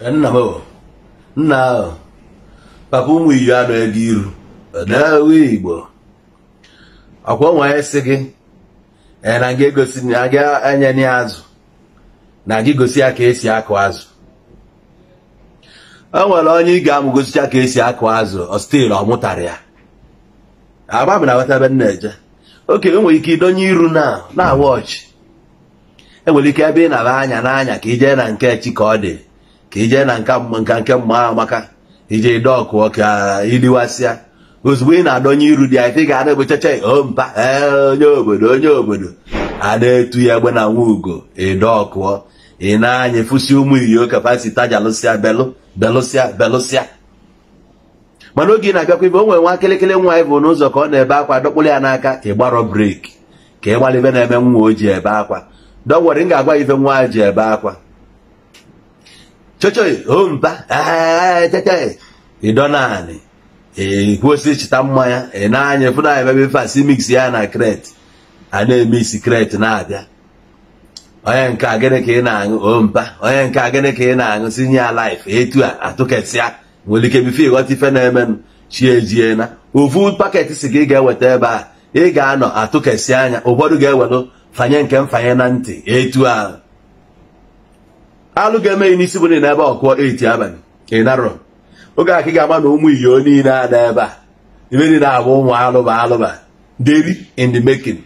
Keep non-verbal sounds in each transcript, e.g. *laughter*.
nna m nna ahụ papa ụmụ iyi anọ ego iru daawe igbo ọkwa nwee sị gị na gị egosi na gị enye ya azụ na gị gosi ya ka esi akụ azụ o nwere onye ị ga-amụ gosicha ka esi akụ azụ ọstil ọ ya agba m na wetabe nna eje oke enwere ike idonye iru na na wọchị enwere ike ebe ị na-aba anya n'anya ka ijee na nke chi ka ọ dị ka ijee na nka nke mma amaka ije ijee ide iliwasịa ozugbo ị na-adọnye iru dị anyị ga-ada ebechacha ompa oh, eh, onye obodo onye obodo ada etu ya egbe na nwa ugo ide ị na-anya efusi ụmụ iyo kapasita jalụsịa belụ belụsịa belụsịa mana oge ị na-abịakwa ibe onwere nwere nwa akịlịkịlị nwa anyị bụ n'ụzọ ka ọ na-ebe akwa dọkpụrụ ya n'aka ị breki ka ị gbalị na-eme nwa o ji ebe akwa dọwere m ga-agwa ife nwa ji ebe akwa chechei ompa chechei eh, eh, eh. ịdọ naanị ekwesị ịchịta mmanya ị na-anya efu na ebe fasi mix ya na kret a na-eme isi kret na-abịa onye nke a gịnị ka ị na-aṅụ ompa onye nke a gịnị ka ị na-aṅụ sinye ya laif etu a atụkesịa nwere ike bife ịghọta ife na-emenụ chi ejie na ofu paketị si gị ga-eweta ebe a ị ga-anọ atụkesị anya ụfọdụ ga-ewelụ fanye nke mfanye na ntị etu ahụ alụ ga-eme ya n'isi bụ niile ebe ọkụọ eti abalị ị narọ oge a ka ị ga-ama na ụmụ iyo niile a na ebe a ibe niile abụ ụmụ alụba alụba daily in the making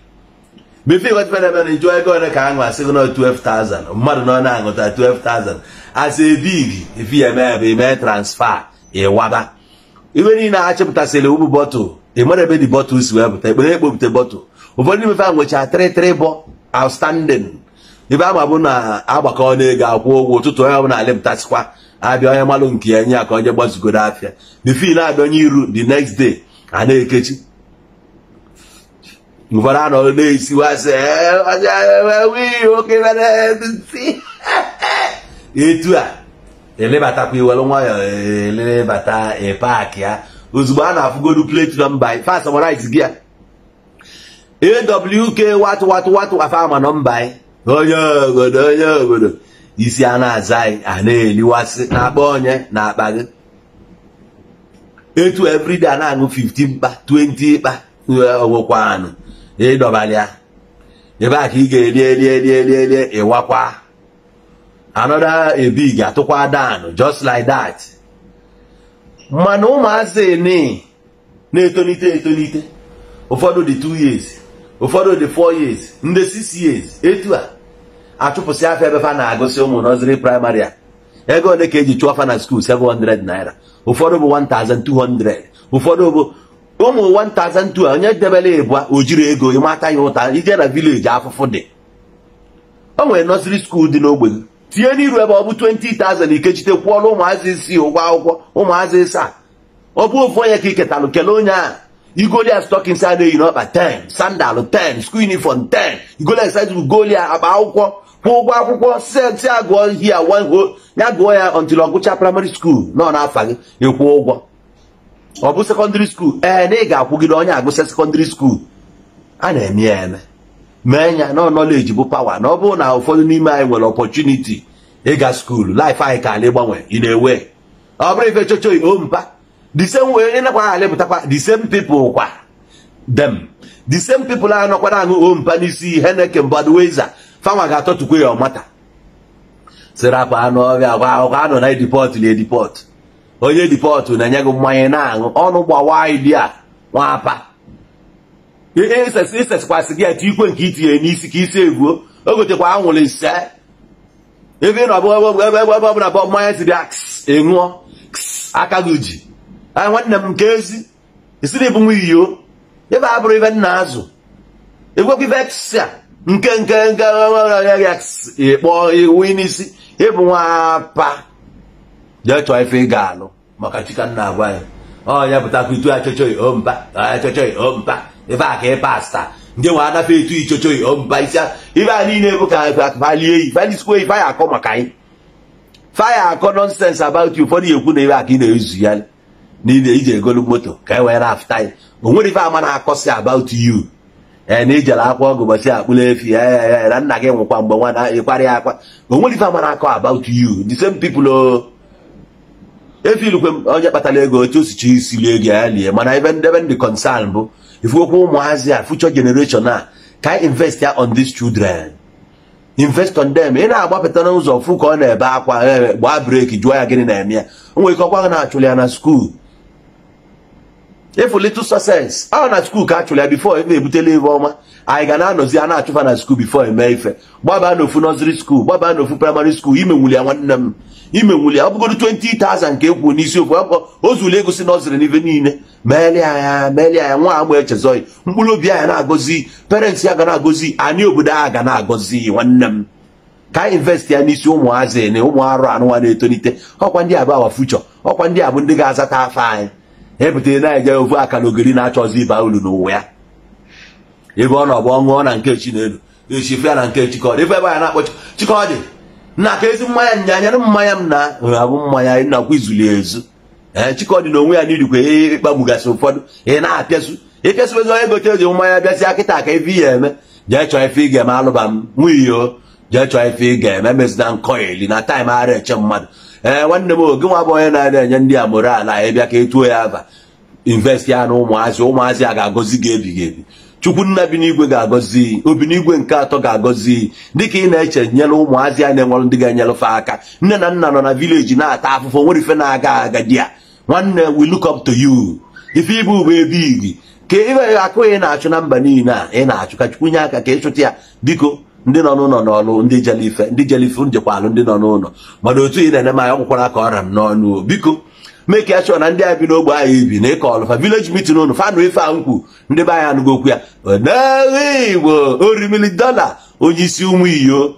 befe iwetfed ebe na ijụọ ego ole ka aṅụ asịgo na 12,000 mmadụ na ọ na-aṅụta 12,000 asị ebigi efi ya eme ebe ime transfa ịwaba ibe niile achịpụtasịrị ụmụ bọtụl ị mara ebe dị bọtụl si wepụta ekpere ekpopụta bọtụl ụfọdụ imefe a nwechaa 33 bọ outstanding ibe ama bụ na agbakọ n'ego akwụ ụgwọ ụtụtụ onye ọbụla alịpụtasịkwa abịa onye malụ nke ya nye ya ka onye gbazugoro afịa bifin abịa onye iru the next day a na-ekechi ụfọdụ anọ na-esiwasị eh, eh, *laughs* etu a elebatakwa iwere nwayọ elebata paakị ya ozugbo a na-afụgodu platinum by fast summarize gị ya AWK watụ watụ watụ afa ama nọmba anyị onye obodo onye obodo isi a na-aza anyị a na-eliwasị na-akpa onye na akpa gị etu everyday a na-aṅụ 15 mkpa 20 mkpa ọgwụkwanụ e, ịdọbali ya ebe a ka ị ga-eli eli eli eli eli ịwakwa another ebig atụkwa dan just like that mana ụmụazị na-etonite etonite ụfọdụ dị 2 years ụfọdụ dị 4 years ndị 6 years etu a achụpụsị afọ ebe fa na-agụsị ụmụ nọziri praịmarị a ego ole ka eji chụọ fa na skuul 700 naira ụfọdụ bụ 1200 ụfọdụ bụ ụmụ 1200 onye debere ịbụa o jiri ego ịmata ya ụta ije na vileji afụfụ dị o nwere nọziri skuul dị n'ogbe gị tinye n'iru ebe ọ bụ 20,000 ikechite kwụọla ụmụazị isii ụgwọ akwụkwọ ụmụazị ịsaa ọ bụ ofu onye ka iketalụ kelee onye ahụ igolias go there eyi n'ọkpa there, 10, sandal 10, school uniform 10. You go there akpa akwụkwọ, kwụọ ụgwọ akwụkwọ, si agụọ here, one go, ya gụọ ya until ọgụcha primary school nọ n'afa gị, kwụ ụgwọ. Ọ bụ secondary school, ee eh, na ị ga-akwụgide onye agụsịa secondary school. A na-eme ya eme. Mee nya na knowledge bụ pawa na ọ bụrụ na ụfọdụ n'ime anyị nwere ọpọchuniti ịga skuulu life anyị ka anyị ịgbanwe, ị na-ewe. Ọ bụrụ ife chochoi o the same way ị nakwa alịpụtakwa the same people kwa dem the same people a nọkwara aṅụ ompa n'isi heneke mbadweza fanwa ga-atọtukwe ya ọmata sịrị akpa anụ ọrịa gwa akwụkwọ anọ na edipọt na edipọt onye edipọt na-enye gị mmanya na-aṅụ ọnụ gbawa idi a nwapa isekwasị gị etu ikwe nke itinye n'isi ka isi egbuo o gotekwa anwụrụ ise ebe ị nọ ebe ọbụla bọ mmanya siri a ks aka gị ji Ah, nwanne m nke ezi isiri bụ nwa iyo ebe a bụrụ ibe nna azụ egwekwa ibe a nke nke nke ịkpọ iwu n'isi ịbụ nwapa jee chọọ ife ị ga-alụ maka chika nna agwa ya onye pụtakwa itu achọchọghị omba achọchọghị omba ebe a ka ị pasta ndị nwa anafe etu ichọchọghị omba isi ibe a niile bụ ka falie yi falisikwo yi faya akọ maka anyị faya akọ nọnsens about you ụfọdụ ekwu na ibe a ka ị na-ezu ya niile iji egolu moto ka e wee rafta anyị o ife ama na-akọsi about you ee na ijere akwa ọgụ akpụla efi ee e, e, na nna gị nwụkwa mgbe na akwa onwere ife ama na-akọ about you the same people o efirikwe m onye kpatara ego otu osichi isili ego ya lie mana ebe ndebe ndị concern bụ ifuokwu ụmụazị a future generation a ka e invest ya on these children invest on them ị na-agbapụta n'ụzọ fụ ka ọ na-ebe akwa gbaa breki jụọ ya gịnị na-eme ya o nwere ike ọkwa na achụlị ya na skuul efu litl success a na skuul ka achụrụ ya bifo e na ebutela ife ọma anyị ga na-anọzi a na-achụfa na skuul bifo eme ife gbaba n'ofu nọziri skuul gbaba n'ofu praịmarị skuul imenwuli ya nwanne m imenwuli ya ọ bụgodo 20,000 ka ekwuru n'isi ofu akwụkwọ ozuli egosi nọziri n'ife niile meeli anya meeli anya nwa agba echezọghị mkpụrụ obi anya na-agọzi parents ya ga na-agọzi anyị obodo a ga na-agọzi nwanne m ka anyị invest ya n'isi ụmụazị na ụmụ arụ anụnwa na-etolite ọkwa ndị a bụ awa ọkwa ndị a bụ ndị ga-azata afọ anyị ebute na-eje ofu aka na ogiri na-achọzi ịba uru n'ụwa ya ebe ọ nọ bụ ọṅụọ na nke chi n'elu echife ya na nke chikọdị ebe ebe na-akpọ chikọdị na ka ezi mmanya nyanyere mmanya m na abụ mmanya nakwa izuli ezu ee chikọdị na onwe ya n'irikwa ịkpagbugasị e, e, ụfọdụ ị na-apịasu ịpịasụbezi onye gote eji mmanya bịasịa kịta ka ife ya eme jee chọọ ife ị ga-eme alụba m nwunye o jee chọọ ife ị ga-eme mezina nkọ eli na taịm ara eche mmadụ ee eh, nwanne m oge nwa bụ onye na-enye ndị a moral ya bịa ka etuo ya aba invest ya na ụmụazị ụmụazị a ga-agọzi gị ebighị ebi chukwunna bi n'igwe ga-agọzi obi n'igwe nke atọ ga-agọzi dịka ị na-eche nyere ụmụazị a na-enwere ndị ga-enyerefe aka nne na nna nọ na vileji na-ata afụfụ nwere ife na-aga agadi a nwanne we look up to you ife ịbụ bụ ebe igi ka ị akụghị na-achụ na mba niile a ị na achụka ka chukwu nye aka ka ịchụta ya biko ndị nọ n'ụlọ n'ọlụ ndị jelife ife ndị jele njekwa alụ ndị nọ n'ụlọ mana otu ị na-ene m ka ọgwụkwara ọrịa m n'ọnụ biko mee ka ya chọọ na ndị anyị bi n'ogbe anyị ibi na ịkọ ọlụfa vileji mitin ụnụ fanụ ife a nkwu ndị be anyị anụgo okwu ya onye Igbo orimili dọla onye isi ụmụ iyo